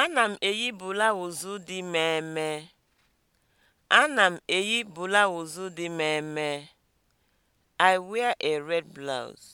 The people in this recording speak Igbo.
Ana m eyi blauzu dị meme. Ana m eyi blauzu dị meme. I wear a red blouse.